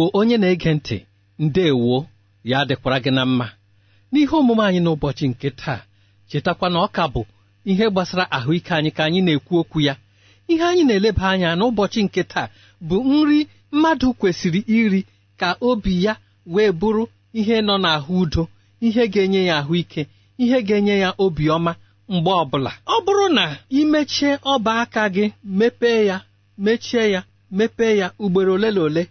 Igbo onye na-ege ntị ndeewo ya dịkwara gị na mma n'ihe omume anyị n'ụbọchị nke taa chetakwa na ọ ka bụ ihe gbasara ahụike anyị ka anyị na-ekwu okwu ya ihe anyị na-eleba anya n'ụbọchị nke taa bụ nri mmadụ kwesịrị iri ka obi ya wee bụrụ ihe nọ n'ahụ udo ihe ga-enye ya ahụike ihe ga-enye ya obiọma mgbe ọbụla ọ bụrụ na imechie ọba aka gị mepee ya mechie ya mepee ya ugboro ole na ole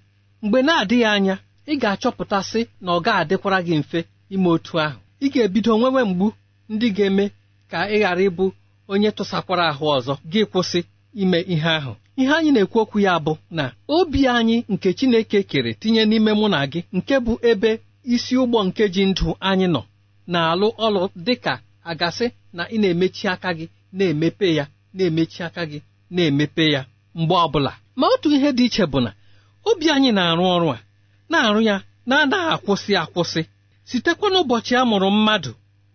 mgbe na-adịghị anya ị ga-achọpụtasị na ọ ga-adịkwara gị mfe ime otu ahụ ị ga-ebido nwewe mgbu ndị ga-eme ka ị ghara ịbụ onye tụsakwara ahụ ọzọ gị kwụsị ime ihe ahụ ihe anyị na-ekwu okwu ya bụ na obi anyị nke Chineke kere tinye n'ime mụ na gị nke bụ ebe isi ụgbọ nke ji ndụ anyị nọ na-alụ ọlụ dịka agasị na ị na-emechi aka gị na-emepe ya na-emechi aka gị na-emepe ya mgbe ọbụla ma otu ihe dị iche bụ na obi anyị na-arụ ọrụ a na-arụ ya na-anaghị akwụsị akwụsị sitekwa n'ụbọchị a mụrụ mmadụ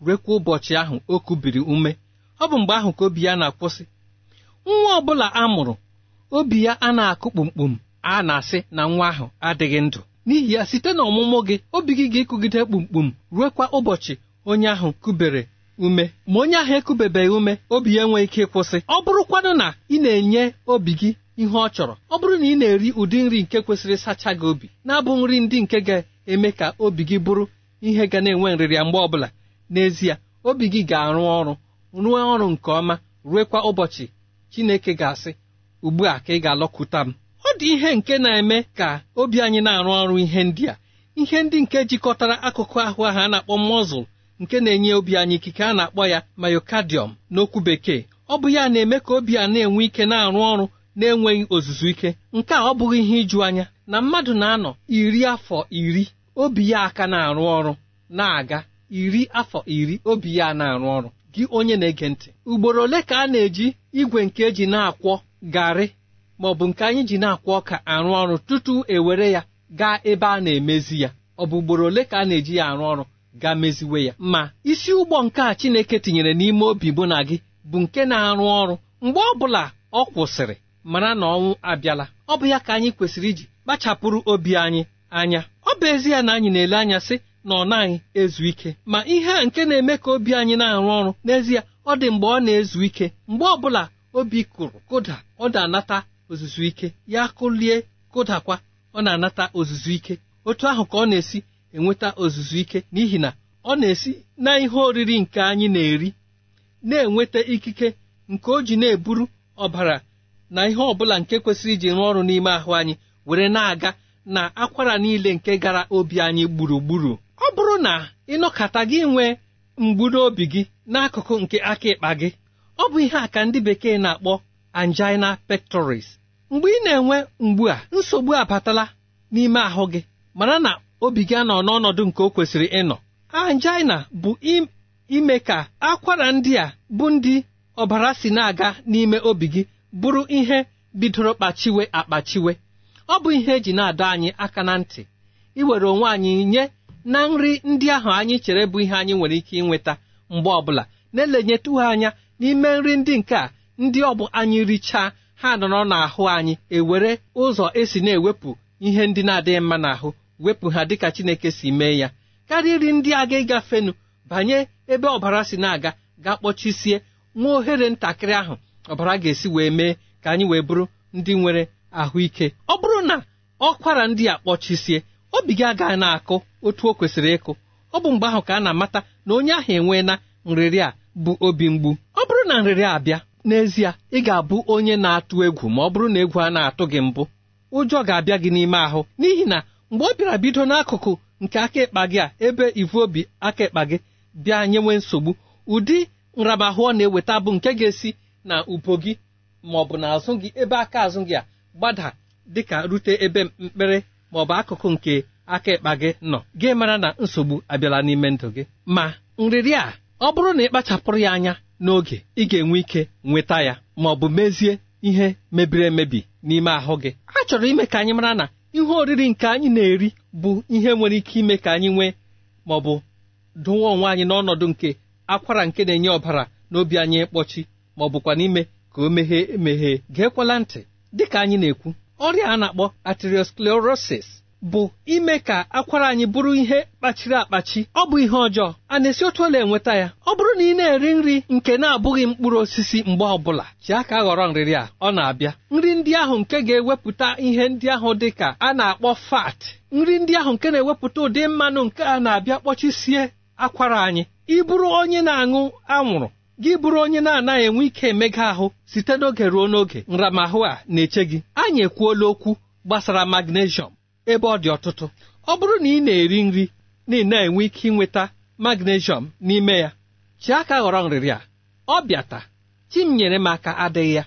rekwa ụbọchị ahụ o kubiri ume ọ bụ mgbe ahụ ka obi ya na-akwụsị nwa ọ bụla a mụrụ obi ya a na-akụ kpumkpum a na-asị na nwa ahụ adịghị ndụ n'ihi ya site n'ọmụmụ gị obi gị ga-ekugide kpumkpum ruekwa ụbọchị onye ahụ kubere ume ma onye ahụ ekubebeghị ume obi ya enweghị ike ịkwụsị ọ bụrụkwanụ na ị na-enye obi gị ihe ọ chọrọ ọ bụrụ na ị na-eri ụdị nri nke kwesịrị sacha gị obi na-abụ nri ndị nke ga-eme ka obi gị bụrụ ihe ga na-enwe nrịrịa mgbe ọbụla n'ezie obi gị ga-arụ ọrụ rụọ ọrụ nke ọma ruekwa ụbọchị Chineke ga-asị ugbu a ka ị ga-alọkụta m ọ dị ihe nke na-eme ka obi anyị na-arụ ọrụ ihe ndị a ihe ndị nke jikọtara akụkụ ahụ ahụ a na-akpọ mọzụl nke na-enye obi anyị ikike a na-akpọ ya myocardium n'okwu bekee ọ bụ ya na-eme ka obi a na-enwe ike na-arụ ọrụ na-enweghị ozuzu ike nke a ọ bụghị ihe iju anya na mmadụ na-anọ iri afọ iri obi ya aka na-arụ ọrụ na-aga iri afọ iri obi ya na-arụ ọrụ gị onye na-ege ntị ugboro ole ka a na-eji igwe nke eji na-akwọ garị ma ọ bụ nke anyị ji na-akwọ ọka arụ ọrụ tutu ewere ya gaa ebe a na-emezi ya ọ bụ ugboro ole ka a na-eji ya arụ ọrụ gaa meziwe ya ma isi ụgbọ nke a Chineke tinyere n'ime obi bụ na gị bụ nke na-arụ ọrụ mgbe ọ bụla ọ kwụsịrị mara na ọnwụ abịala ọ bụ ya ka anyị kwesịrị iji kpachapụrụ obi anyị anya ọ bụ ezi na anyị na-ele anya sị na ọ naghị ezu ike ma ihe a nke na-eme ka obi anyị na-arụ ọrụ n'ezie ọ dị mgbe ọ na-ezu ike mgbe ọ bụla obi kụrụ kụda ọ na-anata ozuzu ike ya kụlie kụdakwa ọ na-anata ozuzu ike otu ahụ ka ọ na-esi enweta ozuzu ike n'ihi na ọ na-esi na ihe oriri nke anyị na-eri na-enweta ikike nke o ji na-eburu ọbara na ihe ọbụla nke kwesịrị iji rụọ ọrụ n'ime ahụ anyị were na-aga na akwara niile nke gara obi anyị gburugburu ọ bụrụ na ịnọkata gị nwee mgburu obi gị n'akụkụ nke aka ịkpa gị ọ bụ ihe a ka ndị bekee na-akpọ angina pectoris mgbe ị na-enwe mgbu a nsogbu abatala n'ime ahụ gị mara na obi gị anọ n'ọnọdụ nke o kwesịrị ịnọ angina bụ ime ka akwara ndị a bụ ndị ọbara si na-aga n'ime obi gị bụrụ ihe bidoro kpachiwe akpachiwe ọ bụ ihe eji na-adọ anyị aka na ntị iwere onwe anyị nye na nri ndị ahụ anyị chere bụ ihe anyị nwere ike ịnweta mgbe ọbụla na elenyetụghị anya n'ime nri ndị nke a ndị ọ bụ anyị richaa ha nọrọ n'ahụ anyị ewere ụzọ esi na-ewepụ ihe ndị na-adịghị mma n'ahụ wepụ ha dịka Chineke si mee ya karịrị ndị aga ịgafenu banye ebe ọbara si na-aga ga kpọchisie nwa ohere ntakịrị ahụ ọbara ga-esi wee mee ka anyị wee bụrụ ndị nwere ahụike ọ bụrụ na ọkwara ndị a kpọchisie obi gị agaghị na-akụ otu o kwesịrị ịkụ ọ bụ mgbe ahụ ka a na-amata na onye ahụ enwee na nrịrị a bụ obi mgbu ọ bụrụ na nrịrị abịa n'ezie ị ga-abụ onye na-atụ egwu ma ọ bụrụ na egwu a na-atụ gị mbụ ụjọ ga-abịa gị n'ime ahụ n'ihi na mgbe ọ bịara bido n'akụkụ nke aka ịkpa gị a ebe ivu obi aka ịkpa gị bịa nyewe nsogbu ụdị nramahụ ọ na-eweta bụ nke ga-esi na ubo gị ma ọ bụ na azụ gị ebe aka azụ gị a gbada dịka rute ebe mkpere ma ọ bụ akụkụ nke aka ịkpa gị nọ gị mara na nsogbu abịala n'ime ndụ gị ma nriri a ọ bụrụ na ị kpachapụrụ ya anya n'oge ị ga-enwe ike nweta ya ma ọ bụ mezie ihe mebiri emebi n'ime ahụ gị a chọrọ ime ka anyị mara na ihe oriri nke anyị na-eri bụ ihe nwere ike ime ka anyị nwee ma ọ bụ dụwa onwe anyị n'ọnọdụ nke akwara nke na-enye ọbara n'obi anyị ịkpọchi ma ọ bụkwa n'ime ka o meghee emeghee geekwala ntị dịka anyị na-ekwu ọrịa a na-akpọ arteriosclerosis bụ ime ka akwara anyị bụrụ ihe kpachiri akpachi ọ bụ ihe ọjọọ a na-esi otu ọla enweta ya ọ bụrụ na ị na-eri nri nke na-abụghị mkpụrụ osisi mgbe ọbụla ji ka ghọrọ nrịrị a ọ na-abịa nri ndị ahụ nke ga-ewepụta ihe ndị ahụ dị ka a na-akpọ fat nri ndị ahụ nke na-ewepụta ụdị mmanụ nke a na-abịa kpọchisie akwara anyị ịbụrụ onye na-aṅụ anwụrụ gị bụrụ onye na-anaghị enwe ike emega ahụ site n'oge ruo n'oge nramahụ a na-eche gị anyị ekwuola okwu gbasara magnesium ebe ọ dị ọtụtụ ọ bụrụ na ị na-eri nri na ị na-enwe ike ịnweta magnesium n'ime ya chi aka ghọrọ nrịrị a ọ bịata chi m nyere m aka adịghị ya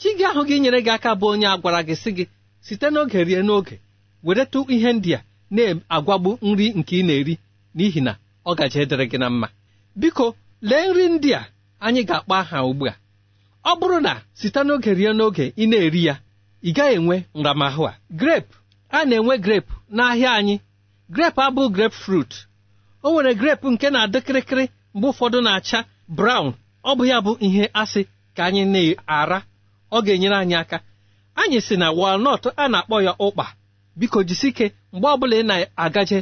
chi gị ahụ gị nyere gị aka bụ onye a gwara gị sị gị site n'oge rie n'oge weretụ ihe ndị a na-agwagbu nri nke ị na-eri n'ihi na ọ gaji dịrị gị na mma biko lee nri ndị a anyị ga-akpọ aha ugbu a ọ bụrụ na site n'oge rie n'oge ị na-eri ya ị gaghị enwe nramahụ a grape a na-enwe grape n'ahịa anyị grep abụ grepụ frut o nwere grepụ nke na-adị kịrịkịrị mgbe ụfọdụ na-acha brawn ọ bụ ya bụ ihe asị ka anyị na-ara ọ ga-enyere anyị aka anyị si na walnut a na-akpọ ya ụkpa biko jisike mgbe ọbụla ị na-agaje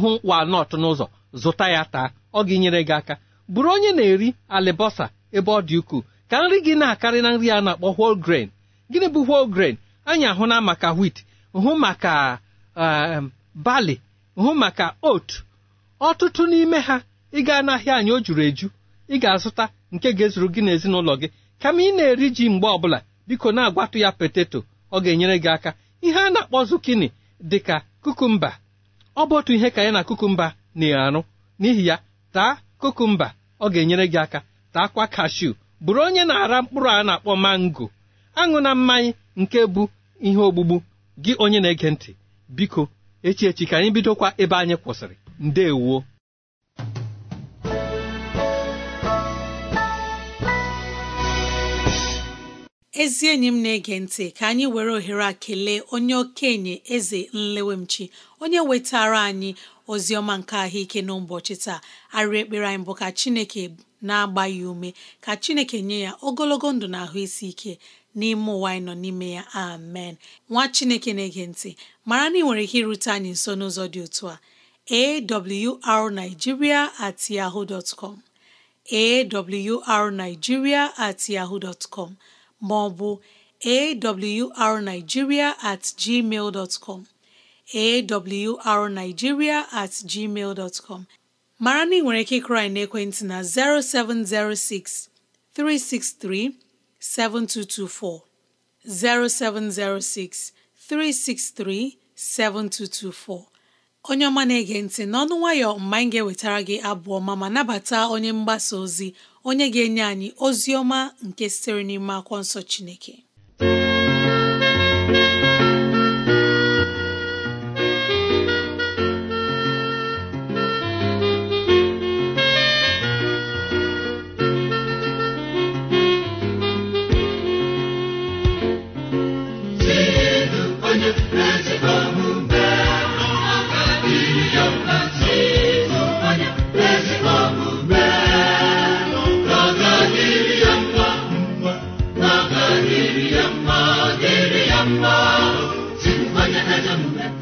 hụ walnut n'ụzọ zụta ya taa ọ ga-enyere gị aka bụrụ onye na-eri alibọsa ebe ọ dị ukwuu ka nri gị na-akarị na nri a na-akpọ whole grain gịnị bụ whole grain anyị ahụna maka wit hụ maka um, bali hụ maka oat ọtụtụ n'ime ha ị gaa n'ahịa anyị o juru eju ị ga-azụta nke ga-ezuru gị n'ezinụlọ gị kama ị na-eri ji mgbe ọbụla biko na-agwatụ ya peteto ọ ga-enyere gị aka ihe a na-akpọ zukini dị ka kukumba ọ bụ otu ihe ka ya na kukumba na-arụ n'ihi ya taa kukumba ọ ga-enyere gị aka taakwa kashu bụrụ onye na-ara mkpụrụ a na-akpọ mango aṅụ na mmanya nke bụ ihe ogbugbu gị onye na-ege ntị biko echi echi ka anyị bidokwa ebe anyị kwụsịrị ndewo ezi enyi m na-ege ntị ka anyị were ohere a kelee onye okenye eze nlewemchi onye wetara anyị ozi ọma nke ahụike n'ụbọchị taa arịrị ekpere anyị bụ ka chineke na-agba ya ume ka chineke nye ya ogologo ndụ na ahụ isi ike n'ime ụwa anyị nọ n'ime ya amen nwa chineke na-ege ntị mara na ị nwere ike irute anyị nso n'ụzọ dị otu a awrnigeria at at com ma ọ awrnigeria at gmail dot com mara na ị nwere ike ịkụrụ n'ekwentị na 0706 363 7224 0706 363 7224 onye ọma na-ege ntị n'ọnụ nwayọ mgbe anyị ga-ewetara gị abụọ ma ma nabata onye mgbasa ozi onye ga-enye anyị ozi ọma nke sitere n'ime akwọ nsọ Chineke ya.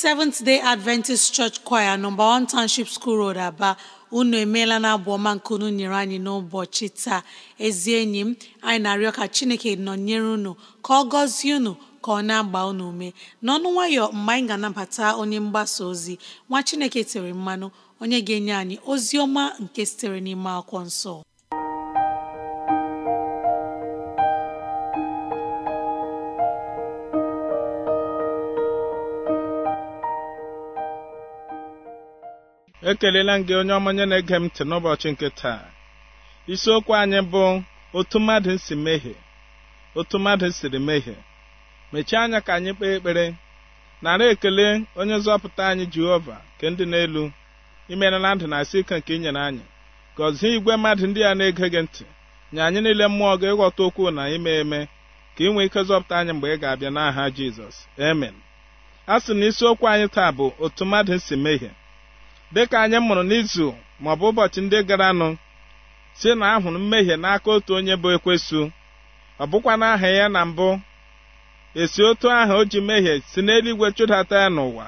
Seventh Day Adventist Church Choir nọmba 1 Township School Road Aba unu emeela na abụ ọma nke unu nyere anyị n'ụbọchị taa ezi enyi m anyị na-arịọ ka Chineke nọnyere unu ka ọ gọzie unu ka ọ na-agba unu ume n'ọnụ nwayọ mgbe anyị ga-anabata onye mgbasa ozi nwa Chineke tere mmanụ onye ga-enye anyị ozi ọma nke sitere n'ime akwụkwọ nsọ ekelela m gị onye ọmanye na-ege m ntị n'ụbọchị nke taa isiokwu anyị bụ otu mmadụ si mehie otu mmadụ siri mehie mechie anya ka anyị kpee ekpere nara ekele onye nzọpụta anyị jehova nke ndị n'elu imerela ndụ na asị ike nke inyere anyị gọzie igwe mmadụ ndị a na-ege gị ntị nye anyị niile mmụọ gị ịghọta okwu na ime eme ka ị nwee ike zọpụta anyị mgbe ị ga-abịa n'aha jizọs amen a sị na isiokwu anyị taa bụ otu mmadụ si mehie dịka anyị mụrụ n'izu maọbụ ụbọchị ndị garanụ si na ahụrụ mmehie n'aka otu onye bụ ekwesu ọ bụkwa n'aha ya na mbụ esi otu aha o ji mmehie si n'eluigwe chụdata ya n'ụwa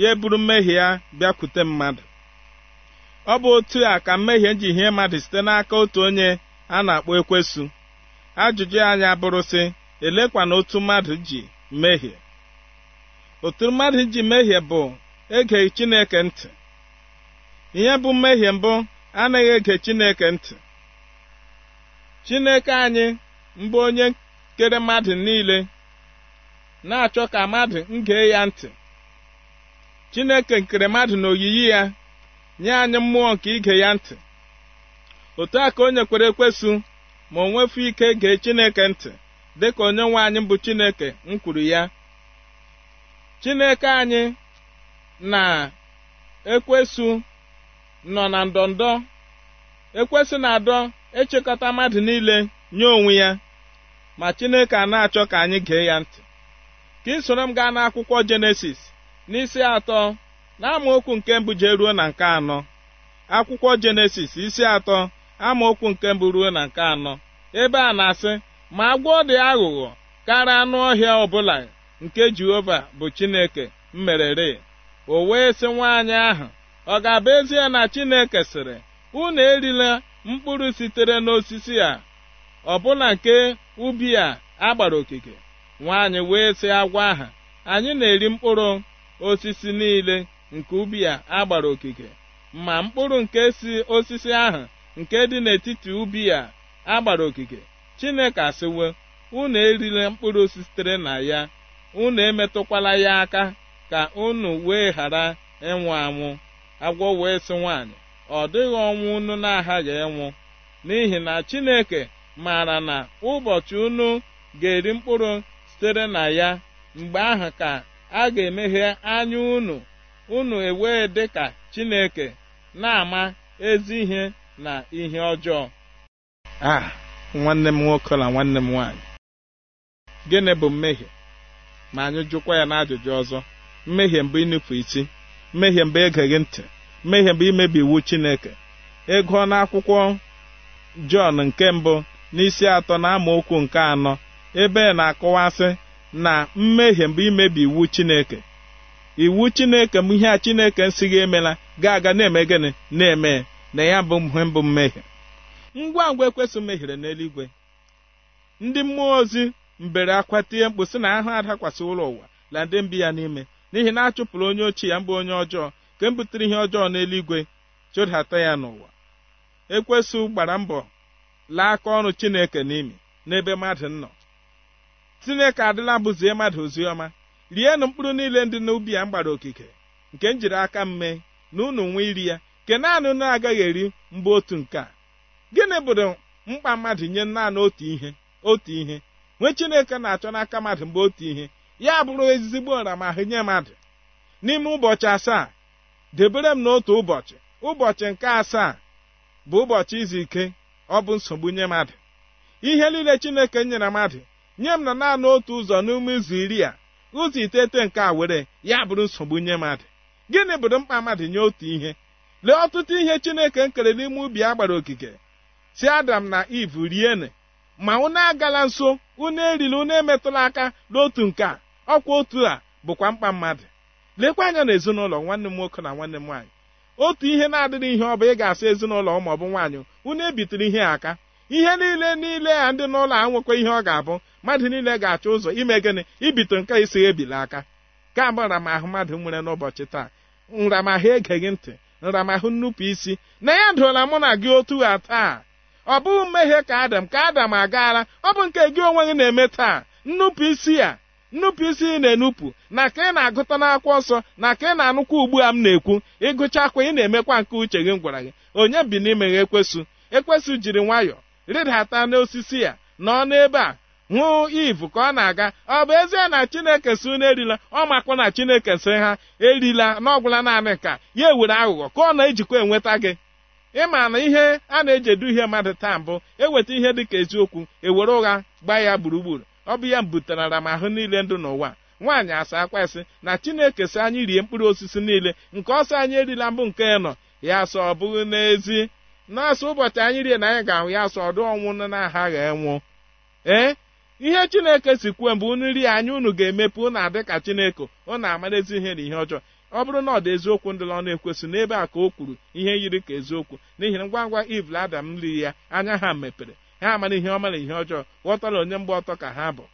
ya eburu mmehie ya bịakwute mmadụ ọ bụ otu a ka mmehie ji hie mmadụ site n'aka otu onye a na-akpọ ekwesu ajụjụ anyị abụrụ sị na otu mmadụ ji mmehie otu mmadụ ji mmehie bụ egeghị Chineke ntị ihe bụ mmehie mbụ anaghị ege chineke ntị chineke anyị mbụ onye kere mmadụ niile na-achọ ka mmadụ ngee ya ntị chineke nkere mmadụ n'oyiyi oyiyi ya nye anyị mmụọ nke ige ya ntị otu a ka onye kwere ekwesu ma o nwefu ike gee chineke ntị dịka onye nwe anyị bụ chineke m kwuru ya chineke anyị na ekwesu nọ na ndọndọ ekwesị na adọ echekọta mmadụ niile nye onwe ya ma chineke a na-achọ ka anyị gee ya ntị ka ị soro m gaa n'akwụkwọ jenesis n'isi atọ na nke mbụ jee ruo na nke anọ akwụkwọ jenesis isi atọ amaokwu nke mbụ ruo na nke anọ ebe a na-asị ma agwọ dị aghụghọ karịa anụ ọhịa ọbụla nke jehova bụ chineke mmerere o wee sị nwaanyị ahụ ọ ga-abụ ezie na Chineke sịrị unu erila mkpụrụ sitere n'osisi a ọbụna nke ubi a agbara okike nwaanyị wee sị agwa aha anyị na-eri mkpụrụ osisi niile nke ubi a agbara okike ma mkpụrụ nke si osisi ahụ nke dị n'etiti ubi a agbara okike Chineke asịwo unu erila mkpụrụ sitere na ya unu emetụkwala ya aka ka unu wee ghara ịnwụ anwụ agwọ wee sị nwaanyị ọ dịghị ọnwụ unu na-aghaghị ịnwụ n'ihi na Chineke maara na ụbọchị unu ga-eri mkpụrụ sitere na ya mgbe ahụ ka a ga-emeghe anya unu unu ewee dị ka Chineke na-ama ezi ihe na ihe ọjọọ a nwanne m nwoke na nwanne m nwaanyị gịnị bụ mmehie ma anyị jụkwa ya n'ajụjụ ọzọ mmehie mbụ ịnụpụ isi mmehie mgbe egeghị ntị mmehie mgbe imebi iwu chineke ego akwụkwọ jọn nke mbụ n'isi atọ na amaokwu nke anọ ebe na-akọwasị na mmehie mgbe imebi iwu chineke iwu chineke m ihe a chineke gị emela ga-aga na-eme gịnị na-eme na ya bụ mhe mbụ mmehie ngwa ngwa ekwesị mehiere n'eluigwe ndị mmụọ ozi mbere akwa tie mkpu sị na ahụ adakwasị ụlọ ụwa na ndị mbi ya n'ime n'ihi na achụpụrụ onye ochie ya mbụ onye ọjọọ nke m butere ihe ọjọọ n'eluigwe chụdata ya n'ụwa ekwesụ gbara mbọ laa aka ọrụ chineke n'imi n'ebe mmadụ nọ chineke adịla bụzie mmadụ oziọma rienụ mkpụrụ niile ndị n'ubi ya mgbara okike nke m jiri aka m mee na unu nwee iri ya nke naanị unu agaghị eri mbụ otu nke a gịnị bụrụ mkpa mmadụ nye naanị otu ihe otu ihe nwee chineke na-achọ n'aka mmadụ mgbe otu ihe ya bụrụ ezigbo ọramahụ nye mmadụ n'ime ụbọchị asaa debere m n'otu ụbọchị ụbọchị nke asaa bụ ụbọchị izu ike ọ bụ nsogbu nye mmadụ ihe niile chineke nyere mmadụ nye m na naanị otu ụzọ n'ime izu iri a ụzọ itete nke a were ya bụrụ nsogbu nye mmadụ gịnị bụrụ mkpa mmadụ nye otu ihe lee ọtụtụ ihe chineke nkere n'ime ubi a gbara okike si adam na iv riene ma unu agala nso unu erila unu emetụla aka n'otu nke a ọkwa otu a bụkwa mkpa mmadụ lekwa anya na ezinụlọ nwanne m nwoke na nwanne m nwaanyị otu ihe na-adịghị ihe ọ bụ ị ga-asị ezinụlọ ma ọ bụ nwaanyị unu ebitere ihe aka ihe niile niile a ndị n'ụlọ a nwekwa ihe ọ ga-abụ mmadụ niile ga-achọ ụzọ ime gịnị ibito nke isi ebili aka ka m ahụ mmadụ nwere n'ụbọchị taa nramahụ egeghị ntị nramahụ nnupụ isi na ya dụla mụ na gị otu a taa ọ bụghị mmehie ka adam ka adam agaala ọ bụ nke gị onwe gị na-eme taa nnupụ isi ya nnupụisi na-enupụ na ka ị na-agụta n'akwụkwọ ọsọ na ka ị na-anụkwa ugbu a m na-ekwu ịgụcha akwa ị na-emekwa nke uche gị m gwara gị onye bi n'ime ha ekwesụ ekwesụ jiri nwayọọ rịdata n'osisi ya nọ n'ebe a hụ ivu ka ọ na-aga ọ bụ ezie na chineke si unu erila ọ makwa na chineke si ha erila n'ọgwụla naanị ka ya ewere aghụghọ ka ọ na-ejikwa enweta gị ịma na ihe a na-eji edu ihe mmadụ taa mbụ eweta ihe dị ka eziokwu ewere ụgha gbaa ya gburugburu ọ bụ ya m m ahụ niile ndụ n'ụwa nwaanyị asa akwa isi na chineke si anyị rie mkpụrụ osisi niile nke ọsọ anyị erila mbụ nke nọ ya sọ ọ bụghị n'ezi n'asọ ụbọchị anyị rie na anyị ga-ahụ ya sọ ọdụ ọnwụ na-aghaghị enwụ ee ihe chineke si kwuo mgbe unu rie anya unu ga-emepe unu adị ka chineke na amara ezi ihe na ihe ọjọọ ọ bụrụ na ọ dị eziokwu ndị ọ na-ekwesị n'ebe a ka o kwuru ihe yiri ka eziokwu n'ihi ngwa ngwa ivl adam ya anya ha mepere ha amara ihe ọma na ihe ọjọọ ghọtara onye mgba ọtọ ka ha bụ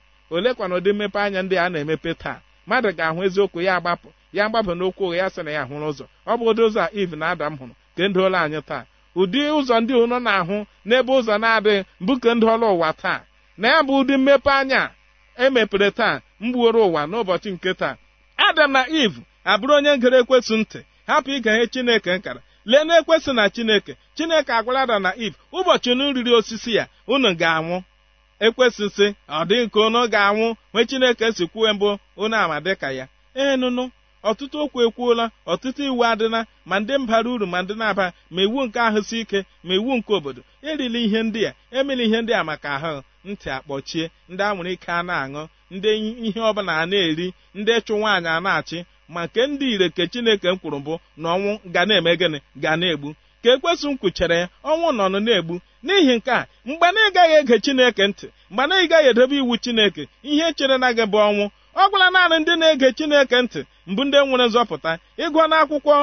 kwa na ụdị mmepe anya ndị a na-emepe taa mmadụ ga-ahụ eziokwu ya agbapụ ya agbapụ n'okwu ụgha ya sị na ya hụrụ ụzọ ọ bụ ụdị ụzọ a iv na adam hụrụ nke ndị ụlọ anyị taa ụdị ụzọ ndị ụnọ na-ahụ n'ebe ụzọ na-adịghị mbụ nke ndị ụwa taa na ya bụ ụdị mmepe anya emepere taa mgbuoro ụwa n'ụbọchị nke taa adam na iv abụrụ onye ngere ekwesụ ntị hapụ ige ihe chineke nkara lee na-ekwesị na chineke chineke agwara ada na if ụbọchị unu riri osisi ya unu ga-anwụ ekwesịsị ọ dị nke unu ga-anwụ nwee chineke si kwuo mbụ unu ama dịka ya enụnụ ọtụtụ okwu ekwuola ọtụtụ iwu adịla ma ndị mbara uru ma ndị na-aba ma iwu nke ahụ si ike ma iwu nke obodo erila ihe ndị a emela ihe ndị a maka ahụ ntị akpọchie ndị anwụrụ ike a na-aṅụ ndị ihe ọbụla a na-eri ndị ịchụ nwaanyị a na-achị ma nke ndị ire ke chineke m kwuru mbụ na ọnwụ ga na-eme gịnị ga na-egbu ka ekwesụ m kwuchere ya ọnwụ nọnụ na-egbu n'ihi nke a mgbe na ị gaghị ege chineke ntị mgbe na ị gaghị iwu chineke ihe chere na gị bụ ọnwụ ọ gwụla naanị ndị na-ege chineke ntị mbụ ndị nwere nzọpụta ịgụọ na akwụkwọ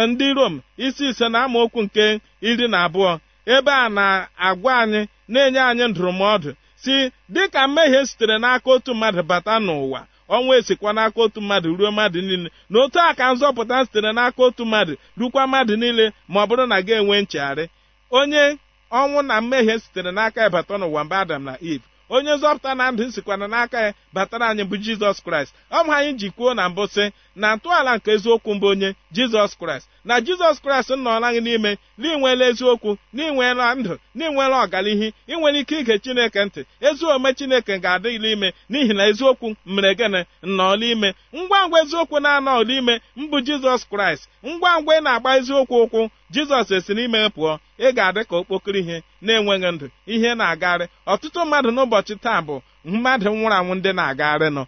eh, ndị rom isi ise na amaokwu nke iri na abụọ ebe a na-agwa anyị na-enye anyị ndụrụmọdụ si dịka mmehie sitere n'aka otu mmadụ bata n'ụwa ọnwa esikwa n'aka otu mmadụ ruo mmadụ niile n'otu a ka nzọpụta sitere n'aka otu mmadụ rukwa mmadụ niile ma ọ bụrụ na ga enwe nchegharị onye ọnwụ na mmehie sitere n'aka ịbata n'ụwa mba adam na iv onye nzọpụta na ndụ sikwana n'aka ya batara anyị bụ jizọs kraịst ọ bụ anyị ji kwuo na mbụ sị na ntọala nke eziokwu mbụ onye jizọs kraịst na jizọs kraịst nnọọla gị n'ime na ịnweela eziokwu na ịnweela ndụ na ịnweela ọganihi ike ige chineke ntị ezi omume chineke ga-adịghịla ime n'ihi na eziokwu mere gịnị nnọọla ime ngwa ngwa eziokwu na-anọọla ime mbụ jizọs kraịst ngwa ngwa ị na-agba eziokwu ụkwụ jizọs esi n'ime pụọ ị ga-adị ka okpokoro ihe na-enweghị ndụ ihe na-agagharị ọtụtụ mmadụ n'ụbọchị taa bụ mmadụ nwụrụ anwụ ndị na-agagharị nọ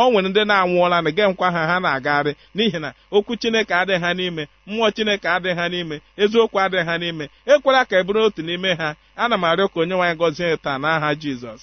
o nwere ndị na-anwụọla na nkwa ha ha na-agagharị n'ihi na okwu chineke adịghị ha n'ime mmụọ chineke adịghị ha n'ime eziokwu adịghị ha n'ime ekwela ka e bụrụ otu n'ime ha ana m arịọ ka onye nwaanyị gọzie taa n'aha jizọs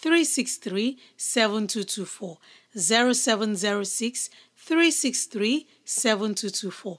363 7224 0706 363 7224